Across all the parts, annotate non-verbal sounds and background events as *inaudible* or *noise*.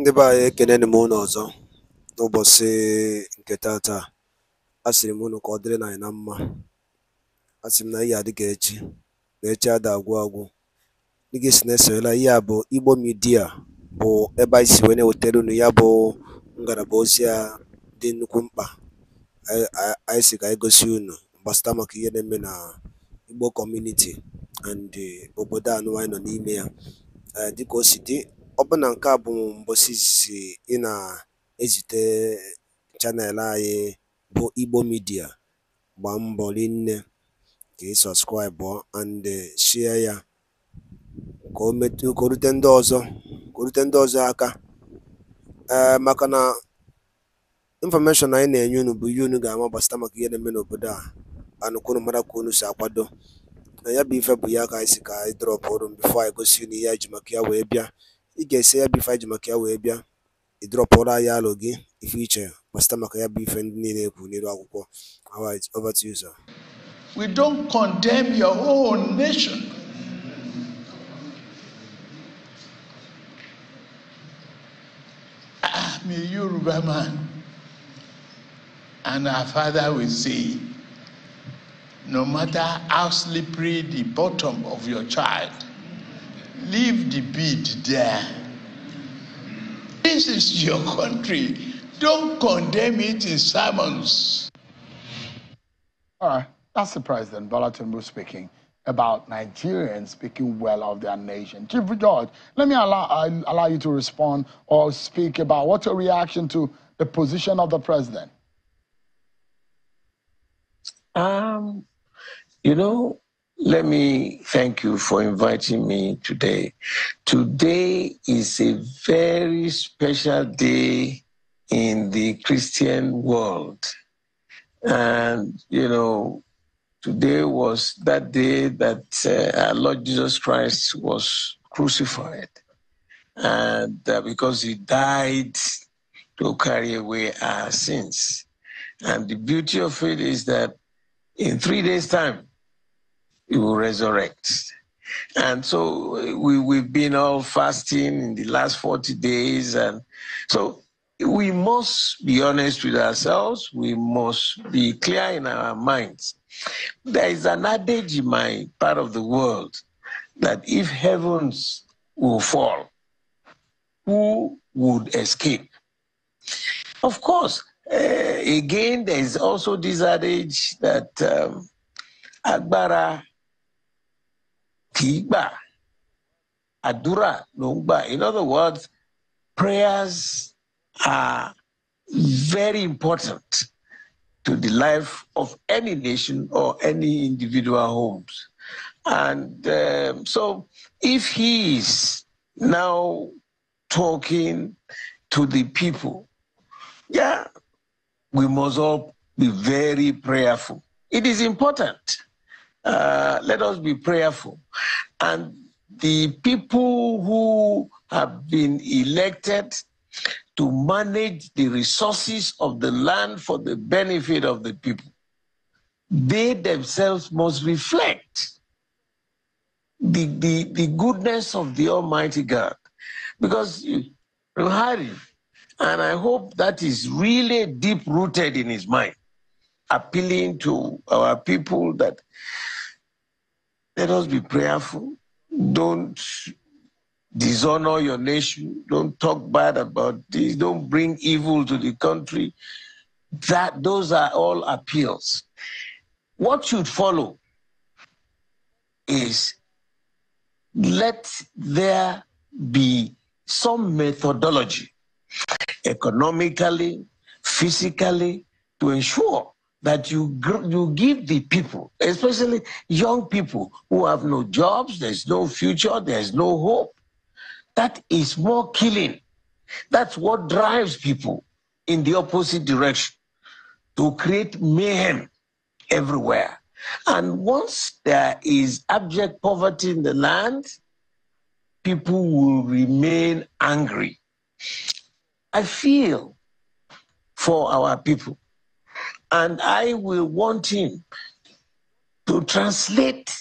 ndị be anyị ekeneni m unu ọzọ n'ụbọchị nke tata a sịrị m unu ka ọ dịrị na anyị na mma Asịrị m na ihe adịghị echi na echi ada agwụ agwụ dịgị si na esoyela ihe a bụ igbo midia bụ ebe anyị si wee na-ewetara unu ya bụ ngalaba ozi a dị nnukwu mkpa anyị si ka anyị gosi unu gbasata maka ihe na-eme na igbo kọmuniti and obodo anụ anyị nọ n'ime ya dịka o si dị ọbụna nke a bụ mbọsị izizi ị na-ezite chanel anyị bụ Igbo midia gbaa mbọ rinne ka ị sọbskraịbụ and sie ya ka o rute ndị ọzọ aka eh, maka na infọmeshọn anyị na-enye unu bụ ihe unu ga-ama gbasịta maka ihe na-eme n'obodo a anụ kwunu mara ka unu si akwado na ya bụ ife bụ ya ka anyị si ka anyị drọpụ ọrụ bifo anyị gosi unu ihe ji maka ya wee bịa ị ga-esi ya bụ ife anyị maka ya wee bịa alụ gị ife iche maka ya bụ ife ndị niile ekwu n'elu akwụkwọ alright over to you sir we don't condemn your own nation. I'm ah, a man, and our father will say, no matter how slippery the bottom of your child, Leave the bead there. This is your country. Don't condemn it in sermons. All right. That's the President Bola was speaking about Nigerians speaking well of their nation. Chief George, let me allow, i uh, allow you to respond or speak about what's your reaction to the position of the president? Um, you know, let me thank you for inviting me today. Today is a very special day in the Christian world. And, you know, today was that day that uh, our Lord Jesus Christ was crucified. And uh, because he died to carry away our sins. And the beauty of it is that in three days' time, he will resurrect. And so we, we've been all fasting in the last 40 days. And so we must be honest with ourselves. We must be clear in our minds. There is an adage in my part of the world that if heavens will fall, who would escape? Of course, uh, again, there is also this adage that um, Agbara Kiba, àdúrà ló in other words prayers are very important to the life of any nation or any individual homes and um, so if he is now talking to the people yeah we must all be very prayerful it is important uh, let us be prayerful. And the people who have been elected to manage the resources of the land for the benefit of the people, they themselves must reflect the, the, the goodness of the Almighty God. Because Ruhari, and I hope that is really deep rooted in his mind, appealing to our people that let us be prayerful. Don't dishonor your nation. Don't talk bad about this. Don't bring evil to the country. That those are all appeals. What should follow is let there be some methodology economically, physically, to ensure that you, you give the people, especially young people who have no jobs, there's no future, there's no hope. That is more killing. That's what drives people in the opposite direction to create mayhem everywhere. And once there is abject poverty in the land, people will remain angry. I feel for our people and I will want him to translate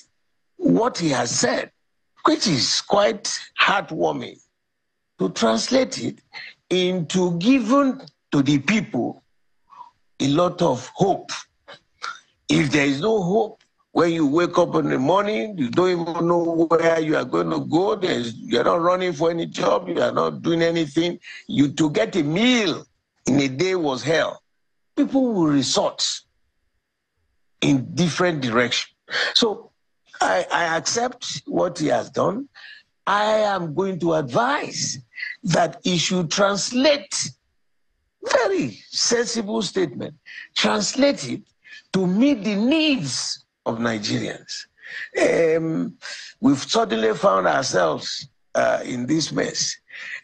what he has said, which is quite heartwarming, to translate it into giving to the people a lot of hope. If there is no hope, when you wake up in the morning, you don't even know where you are going to go. There's, you're not running for any job. You are not doing anything. You to get a meal in a day was hell people will resort in different direction. So I, I accept what he has done. I am going to advise that he should translate very sensible statement. Translate it to meet the needs of Nigerians. Um, we've suddenly found ourselves uh, in this mess.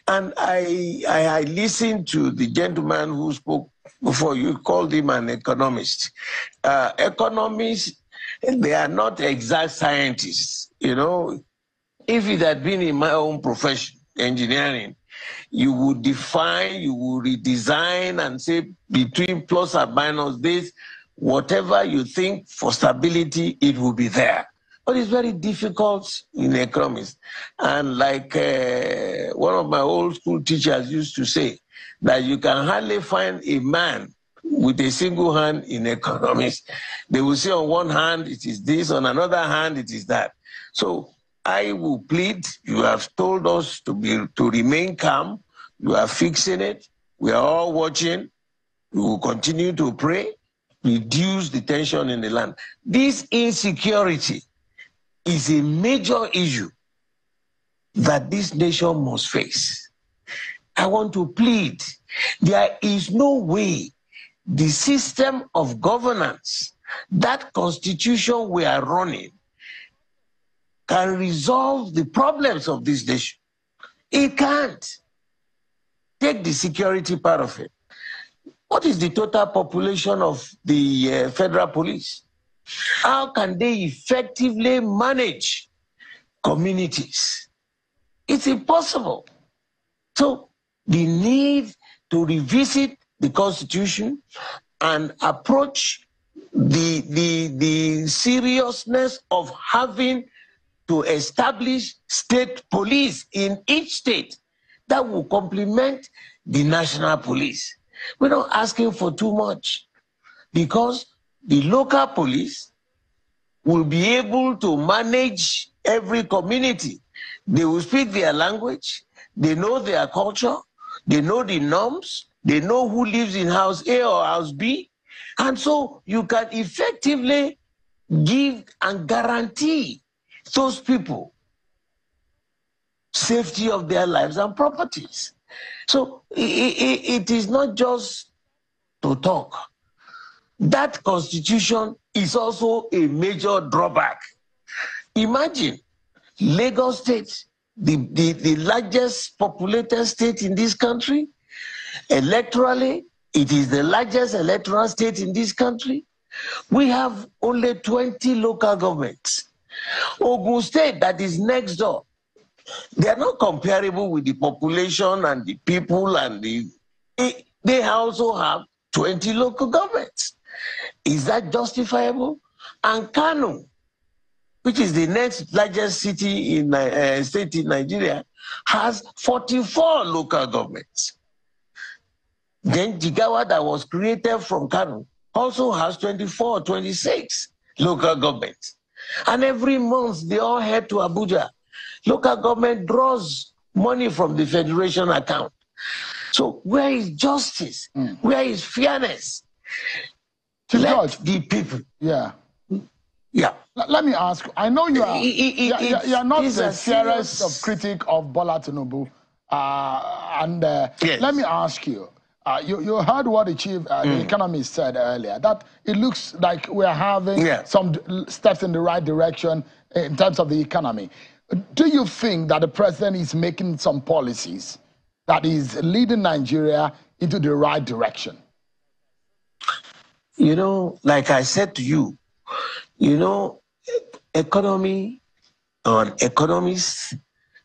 And I, I, I listened to the gentleman who spoke before you called him an economist. Uh, economists, they are not exact scientists. You know, if it had been in my own profession, engineering, you would define, you would redesign and say between plus and minus this, whatever you think for stability, it will be there. But it's very difficult in economics. And like uh, one of my old school teachers used to say, that you can hardly find a man with a single hand in economics. *laughs* They will say on one hand it is this, on another hand it is that. So I will plead, you have told us to be to remain calm. You are fixing it. We are all watching. We will continue to pray, reduce the tension in the land. This insecurity is a major issue that this nation must face. I want to plead. There is no way the system of governance, that constitution we are running, can resolve the problems of this nation. It can't. Take the security part of it. What is the total population of the uh, federal police? How can they effectively manage communities? It's impossible. So the need to revisit the Constitution and approach the, the, the seriousness of having to establish state police in each state that will complement the national police. We're not asking for too much because the local police will be able to manage every community. They will speak their language, they know their culture, they know the norms. They know who lives in house A or house B. And so you can effectively give and guarantee those people safety of their lives and properties. So it, it, it is not just to talk. That constitution is also a major drawback. Imagine Lagos State the, the, the largest populated state in this country. Electorally, it is the largest electoral state in this country. We have only 20 local governments. Ogun State, that is next door, they are not comparable with the population and the people and the. They also have 20 local governments. Is that justifiable? And Kano, which is the next largest city in uh, uh, state in Nigeria, has 44 local governments. Then Jigawa, that was created from Kano, also has 24, 26 local governments. And every month they all head to Abuja. Local government draws money from the federation account. So where is justice? Mm. Where is fairness? To Let the people. Yeah. Yeah. L- let me ask. I know you are. It, it, you, are you are not the fiercest of critic of Bola Tinubu. Uh, and uh, yes. let me ask you. Uh, you, you heard what the chief uh, mm. the economist said earlier that it looks like we're having yeah. some d- steps in the right direction in terms of the economy. Do you think that the president is making some policies that is leading Nigeria into the right direction? You know, like I said to you, you know, economy or economists,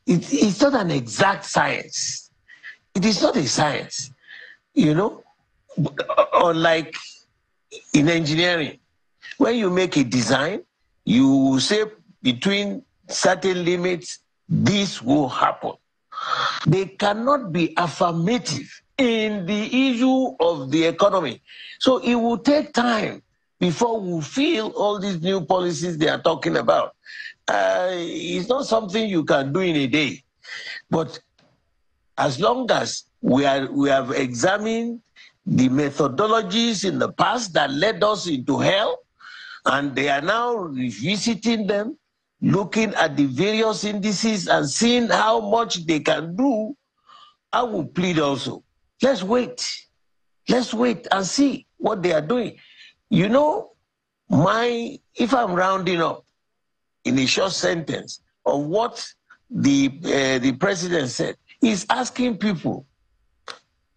it, it's not an exact science. It is not a science. You know, unlike in engineering, when you make a design, you say between certain limits, this will happen. They cannot be affirmative in the issue of the economy. So it will take time before we feel all these new policies they are talking about. Uh, it's not something you can do in a day. But as long as we, are, we have examined the methodologies in the past that led us into hell, and they are now revisiting them, looking at the various indices and seeing how much they can do, I will plead also. Let's wait. Let's wait and see what they are doing. You know, my if I'm rounding up in a short sentence of what the uh, the president said, he's asking people,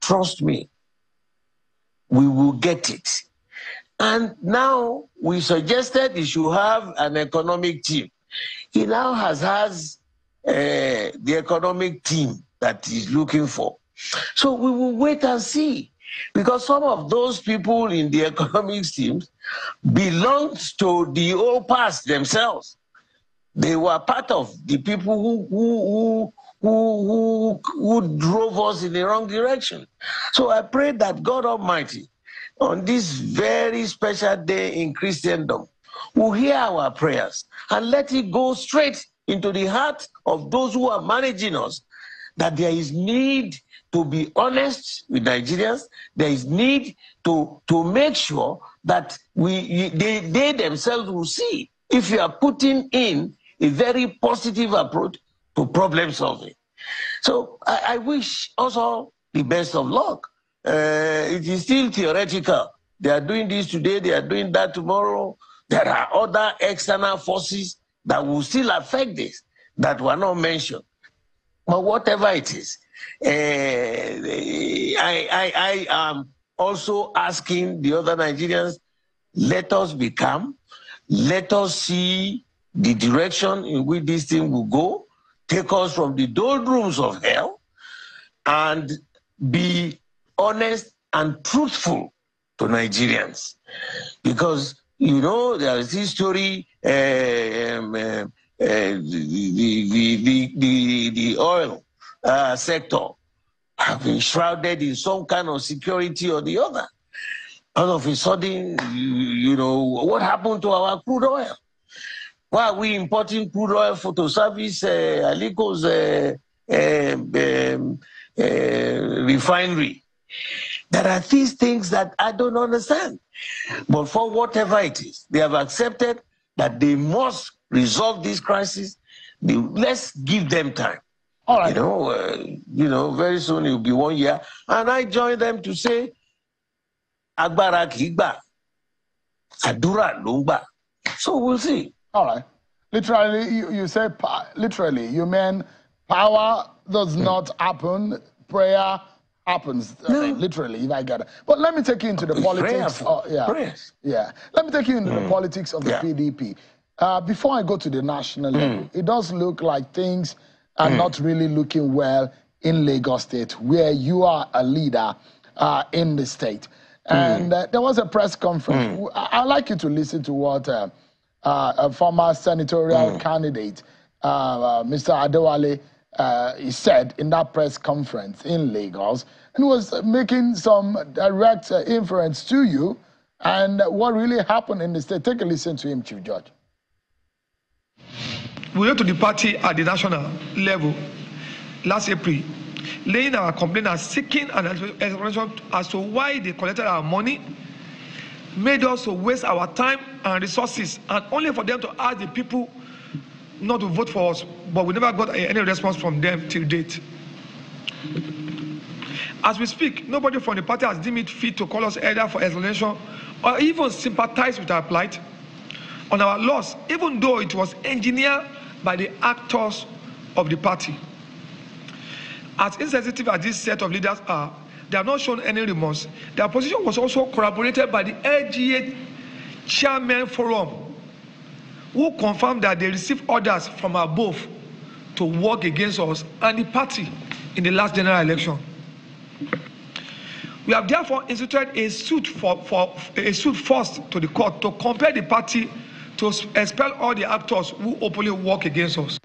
trust me, we will get it. And now we suggested he should have an economic team. He now has has uh, the economic team that he's looking for. So we will wait and see. Because some of those people in the *laughs* economic teams belonged to the old past themselves. They were part of the people who, who, who, who, who drove us in the wrong direction. So I pray that God Almighty, on this very special day in Christendom, will hear our prayers and let it go straight into the heart of those who are managing us that there is need to be honest with Nigerians. There is need to, to make sure that we, they, they themselves will see if you are putting in a very positive approach to problem solving. So I, I wish also the best of luck. Uh, it is still theoretical. They are doing this today, they are doing that tomorrow. There are other external forces that will still affect this that were not mentioned. But whatever it is, Eh, I, I, I am also asking the other Nigerians, let us become, let us see the direction in which this thing will go, take us from the doldrums of hell, and be honest and truthful to Nigerians. Because, you know, there is this story, uh, um, uh, the, the, the, the, oil uh, sector have been shrouded in some kind of security or the other. All of a sudden, you, you know, what happened to our crude oil? Why are we importing crude oil for to service uh, Alico's uh, um, um, uh, refinery? There are these things that I don't understand. But for whatever it is, they have accepted that they must resolve this crisis. let's give them time. All right. You know, uh, you know, very soon it will be one year. And I join them to say, Agbára kìí àdúrà lumba." So we'll see. All right. Literally, you, you say, literally, you mean power does not happen, prayer happens. No. literally, if I got it. But let me take you into the politics. Prayer. Of, yeah. Prayers. Yeah. Let me take you into mm. the politics of the yeah. PDP. Uh, before I go to the national mm. level, it does look like things – are mm. not really looking well in Lagos State, where you are a leader uh, in the state. Hmm. And mm. uh, there was a press conference. Mm. I- would like you to listen to what uh, uh a former senatorial hmm. candidate, uh, uh, Mr. Adewale, he said in that press conference in Lagos, and was making some direct inference to you and what really happened in the state. Take a listen to him, Chief Judge we went to the party at the national level last April, laying our complaint and seeking an explanation as to why they collected our money, made us waste our time and resources, and only for them to ask the people not to vote for us, but we never got any response from them till date. As we speak, nobody from the party has deemed it fit to call us either for explanation or even sympathize with our plight on our loss, even though it was engineered by the actors of the party. As insensitive as this set of leaders are, they have not shown any remorse. Their position was also corroborated by the LGA Chairman Forum, who confirmed that they received orders from above to work against us and the party in the last general election. We have therefore instituted a suit for, for a suit first to the court to compare the party to expel all the actors who openly work against us.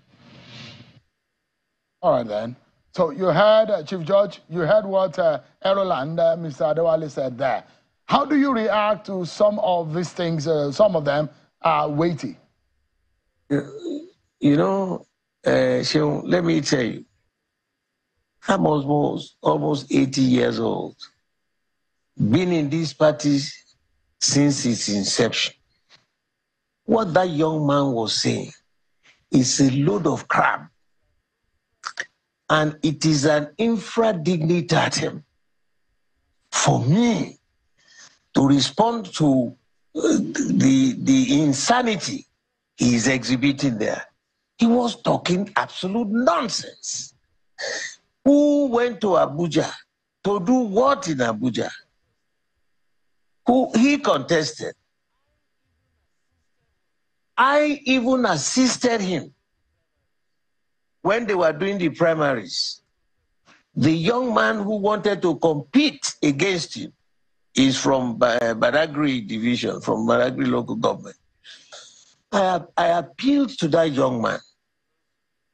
All right, then. So you heard, uh, Chief Judge, you heard what uh, Eroland, uh, Mr. Adewale said there. How do you react to some of these things? Uh, some of them are weighty. You know, uh, let me tell you, I'm almost, almost 80 years old, been in these parties since its inception. What that young man was saying is a load of crap. And it is an infra dignitatem for me to respond to uh, the, the insanity he is exhibiting there. He was talking absolute nonsense. Who went to Abuja to do what in Abuja? Who he contested. I even assisted him when they were doing the primaries. The young man who wanted to compete against him is from Baragri division, from Baragri local government. I, I appealed to that young man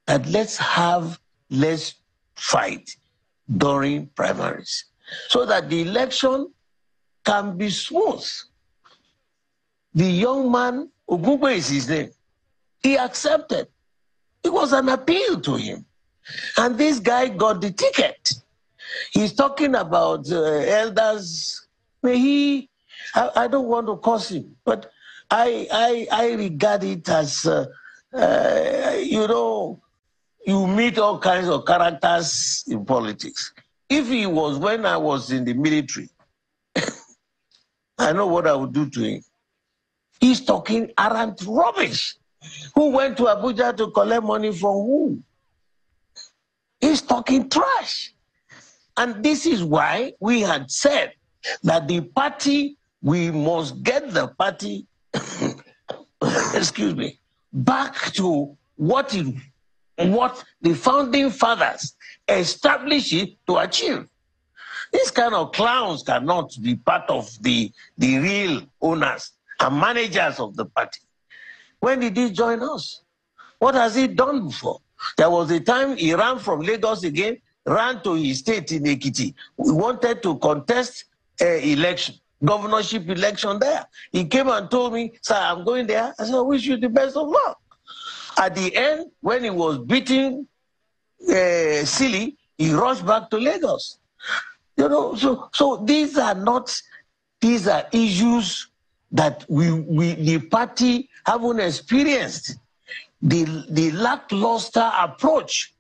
that let's have less fight during primaries so that the election can be smooth. The young man Ogungwe is his name. He accepted. It was an appeal to him. And this guy got the ticket. He's talking about uh, elders. May he, I, I, don't want to curse him, but I, I, I regard it as, uh, uh, you know, you meet all kinds of characters in politics. If he was when I was in the military, *laughs* I know what I would do to him. He's talking arrant rubbish. Who went to Abuja to collect money from who? He's talking trash. And this is why we had said that the party, we must get the party, *coughs* excuse me, back to what it, what the founding fathers established it to achieve. These kind of clowns cannot be part of the, the real owners and managers of the party. When did he join us? What has he done before? There was a time he ran from Lagos again, ran to his state in Ekiti. We wanted to contest an uh, election, governorship election there. He came and told me, sir, I'm going there. I said, I wish you the best of luck. At the end, when he was beating uh, silly, he rushed back to Lagos. You know, so so these are not these are issues that we, we the party haven't experienced the, the lackluster approach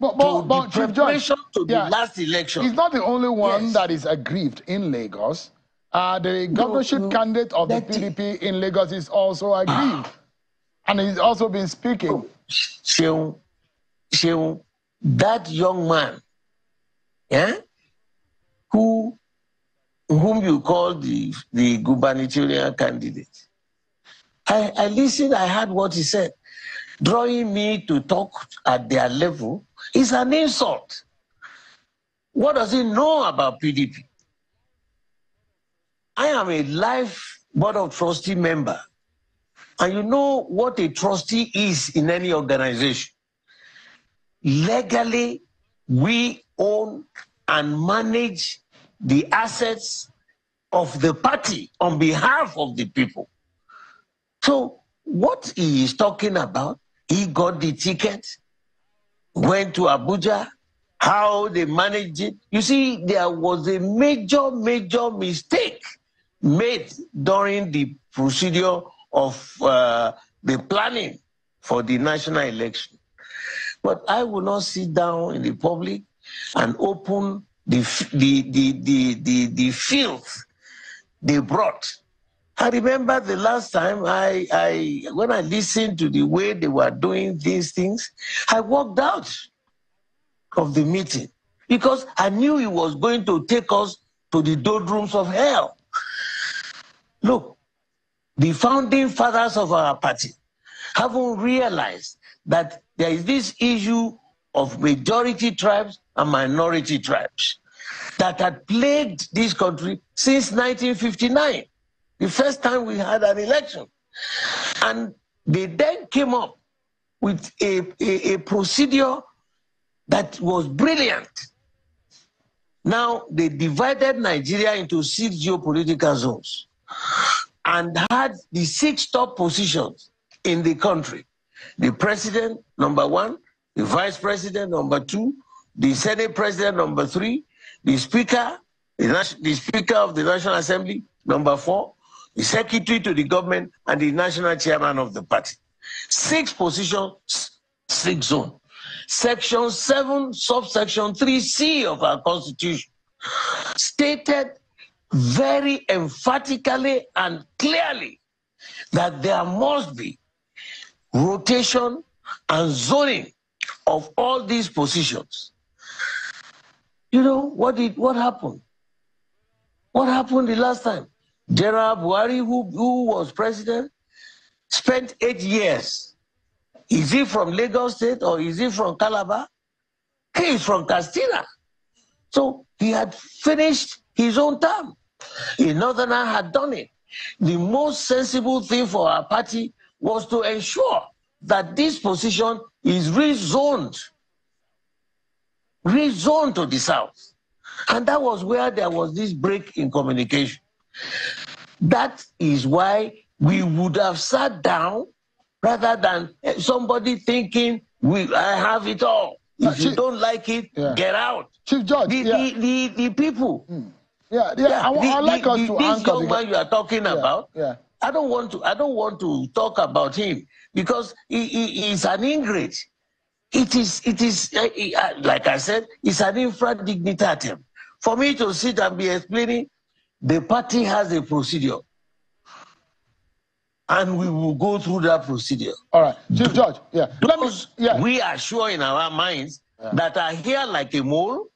but, but, to but, the preparation George, to yeah, the last election. He's not the only one yes. that is aggrieved in Lagos. Uh, the governorship no, candidate of the PDP in Lagos is also aggrieved. Ah. and he's also been speaking. Oh, Sheung, Sheung, that young man, yeah, who whom you call the, the gubernatorial candidate. I, I listened, I heard what he said. Drawing me to talk at their level is an insult. What does he know about PDP? I am a life board of trustee member. And you know what a trustee is in any organization. Legally, we own and manage the assets of the party on behalf of the people. So, what he is talking about, he got the ticket, went to Abuja, how they managed it. You see, there was a major, major mistake made during the procedure of uh, the planning for the national election. But I will not sit down in the public and open the, the, the, the, the, filth they brought. I remember the last time I, I when I listened to the way they were doing these things, I walked out of the meeting because I knew it was going to take us to the doldrums of hell. Look, the founding fathers of our party haven't realized that there is this issue of majority tribes and minority tribes that had plagued this country since 1959, the first time we had an election. And they then came up with a, a, a procedure that was brilliant. Now they divided Nigeria into six geopolitical zones and had the six top positions in the country. The president, number one, the vice president number two, the senate president number three, the speaker, the, the speaker of the National Assembly number four, the secretary to the government, and the national chairman of the party. Six positions, six zones. Section 7, subsection 3C of our constitution stated very emphatically and clearly that there must be rotation and zoning of all these positions. You know, what did what happened? What happened the last time? General Buhari, who, who was president, spent eight years. Is he from Lagos State or is he from Calabar? He is from Castilla. So he had finished his own term. The Northerner had done it. The most sensible thing for our party was to ensure that this position is rezoned, rezoned to the south. And that was where there was this break in communication. That is why we would have sat down rather than eh, somebody thinking, we, I have it all. If Chief, you don't like it, yeah. get out. Chief Judge, the, yeah. the, the, the, people. Yeah, hmm. yeah, yeah. I, I like the, us to this young man you are talking about. Yeah I don't want to. I don't want to talk about him because he, he is an ingrate. It is. It is. Uh, uh, like I said, it's an infra dignitatem. For me to sit and be explaining, the party has a procedure, and we will go through that procedure. All right, Chief Judge. Yeah. Those me, yeah. we are sure in our minds yeah. that are here like a mole,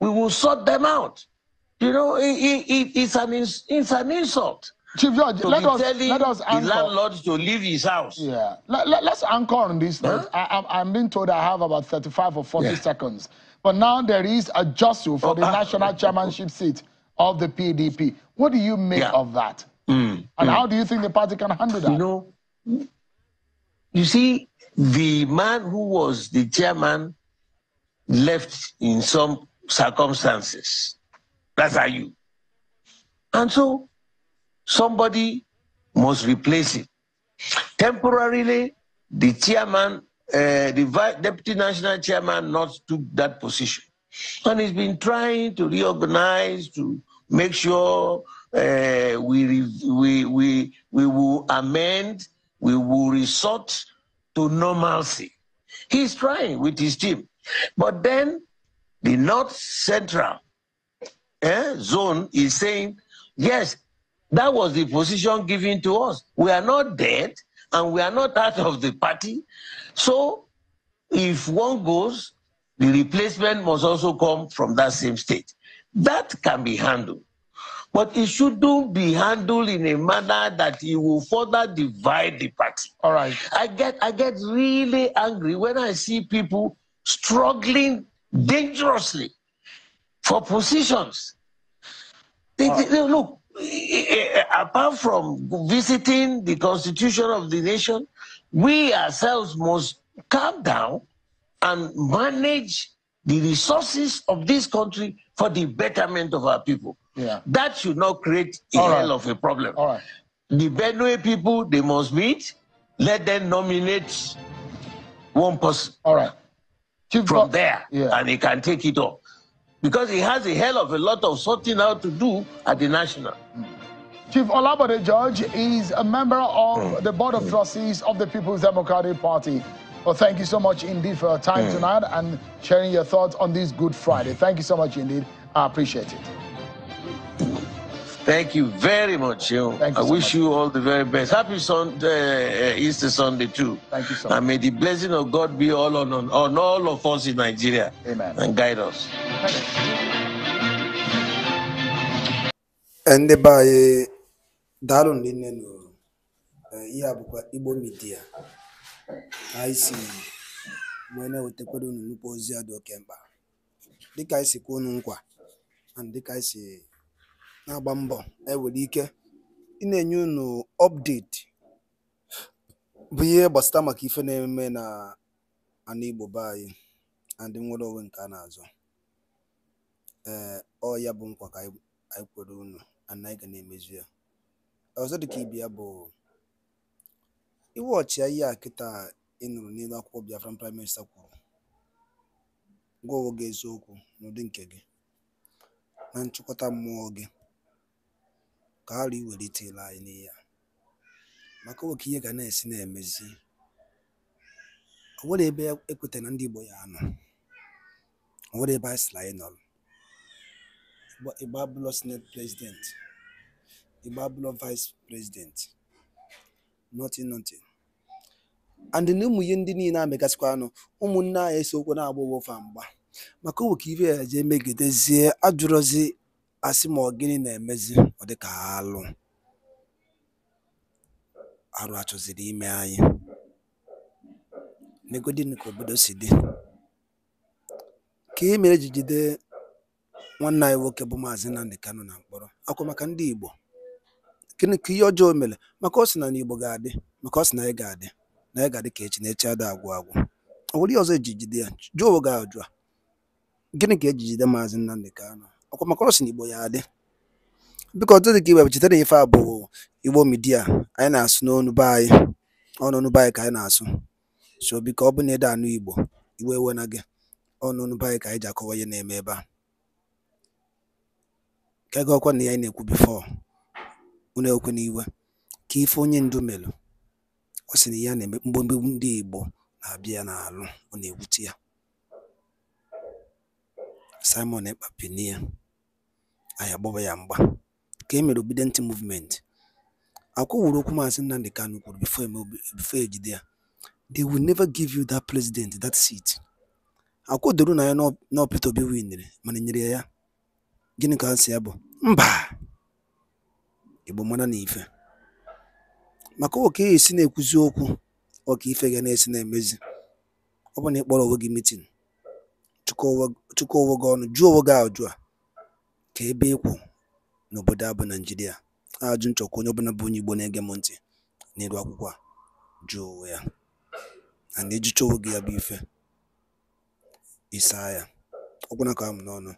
we will sort them out. You know, it, it, it's an it's an insult. Chief George, let, us, let us anchor. the landlord to leave his house. Yeah. Let, let, us anchor on this. Huh? I, am being told I have about 35 or 40 yeah. seconds. But now there is a jostle for oh, the uh, national uh, chairmanship seat of the PDP. What do you make yeah. of that? Mm, and mm. how do you think the party can handle that? You know, you see, the man who was the chairman left in some circumstances. That's how you. And so somebody must replace it. Temporarily, the chairman, uh, the deputy national chairman, not took that position, and he's been trying to reorganize to make sure uh, we we we we will amend, we will resort to normalcy. He's trying with his team, but then the North Central eh, zone is saying, yes, that was the position given to us. We are not dead and we are not out of the party. So if one goes, the replacement must also come from that same state. That can be handled. But it shouldn't be handled in a manner that it will further divide the party. All right. I get I get really angry when I see people struggling dangerously for positions. They, right. Uh, they, look, Eh, apart from visiting the constitution of the nation, we ourselves must calm down and manage the resources of this country for the betterment of our people. Yeah. That should not create a All hell right. of a problem. All right. The Benue people, they must meet. Let them nominate one person. All right. from there, yeah. and they can take it up because he has a hell of a lot of sorting out to do at the national. Chief Olabode George is a member of hmm. the Board of hmm. Trustees of the People's Democratic Party. Well, thank you so much indeed for your time hmm. tonight and sharing your thoughts on this Good Friday. Thank you so much indeed. I appreciate it. Thank you very much. You. Thank you I so wish much. you all the very best. Happy Sunday, uh, uh, Easter Sunday too. Thank you so much. And may the blessing of God be all on, on, on all of us in Nigeria. Amen. And guide us. ndị be anyị daalụ na inne nụrụ eh, ihe a bụkwa igbo midia anyị si wee na-ewetakwara unu nnukwu ozi a dị oke mkpa dịka anyị si kwuo unu nkwa dịka anyị si na-agba mbọ ewere ike ị na-enye unu update bụ ihe gbasara maka ife na-eme na ana igbo be anyị and nwere onwe nke a na-azọ ọ ya bụ nkwa ka anyị kwere unu ana anyị ga na-emezu ya. Ọzọ dịka ibe ya bụ iwe iwu ọchịagha a kịta ị nụrụ n'elu akwụkwọ Biafran Prime Minister kwuru gwa onwe gị eziokwu n'ụdị nke gị na nchịkọta mmụọ gị ka ghara iwelitela anyị n'ihe a maka oke ihe ga na-esi na-emezi o nwere ebe ekwetara na ndị Igbo ya anọ o nwere ebe anyị sịrị anyị nọrọ Igbabulo Senate President, Igbabulo Vice President, nothing nothing. and na ụmụ ihe ndị niile amegasịkwa anụ ụmụnne anyị eso okwu na-agba ụwofa mgba maka owe ka ibe ya jee megidezie ajụrụzi ma ọ gịnị na-emezi ọ dịka alụ arụ achọziri ime anyị n'egodi nke obodo si dị ka e nwanne anyị nwoke bụ Maazị Nnamdi Kanu na mkpọrọ akwa maka ndị Igbo gịnị ka ihe ọjọọ mere maka ọ sị na n'Igbo ga-adị maka ọ sị na anyị ga-adị na anyị ga-adị ka echi na echi ada agwụ agwụ ọ bụrụ ihe ọzọ eji jide ya jụọ oge ajụ a gịnị ka eji jide Maazị Nnamdi Kanu ọkwa maka ọ sị na Igbo ya adị biko ọtụtụ ka iwe cheta na ife a bụ Igbo midia anyị na-asụ n'ọnụ be anyị ọnụnụ be anyị ka anyị na-asụ so biko ọ bụ na ede anụ Igbo iwe ewena gị ọnụnụ be anyị ka anyị ji akọwa ihe na-eme ebe a nke ga ọkwa na ya na-ekwu bifo unu ekwe n'iwe ka ife onye ndu melu ọ sị na ya na-eme mgbomgbe ndị Igbo na-abịa n'alụ ọ na-ewute ya Simon Ekpa peni ya anyị agbaba ya mgba ka e mere obedient movement akwụwụrụ okwu maazị Nnamdi Kanu kwuru before ejide e ya they will never give you that president that seat akwụdoro na ya n'ọpịta obi winere mana e nyere ya ya Gịnị ka answer ya bụ? Mba! Igbo mana na ife. Maka ọ ka esi na-ekwuzi okwu, ọka ife ga na-esi na-emezi. Ọ bụ na ị kpọrọ onwe gị meeting, chịkọọ onwe gị ọnụ, jụọ onwe gị ajụjụ a ka ebe ịkwụ n'obodo abụ Naijiria, Ajụ nchọkwa onye ọbụla bụ onye Igbo na-ege m ntị na-eru akwụkwọ a jụọ onwe ya. And ịjụcha onwe gị ya bụ ife, ị saa ya. Ọ ka amụ n'ọnụ.